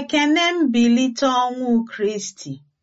Ekene mbilite ọnwụ Kristi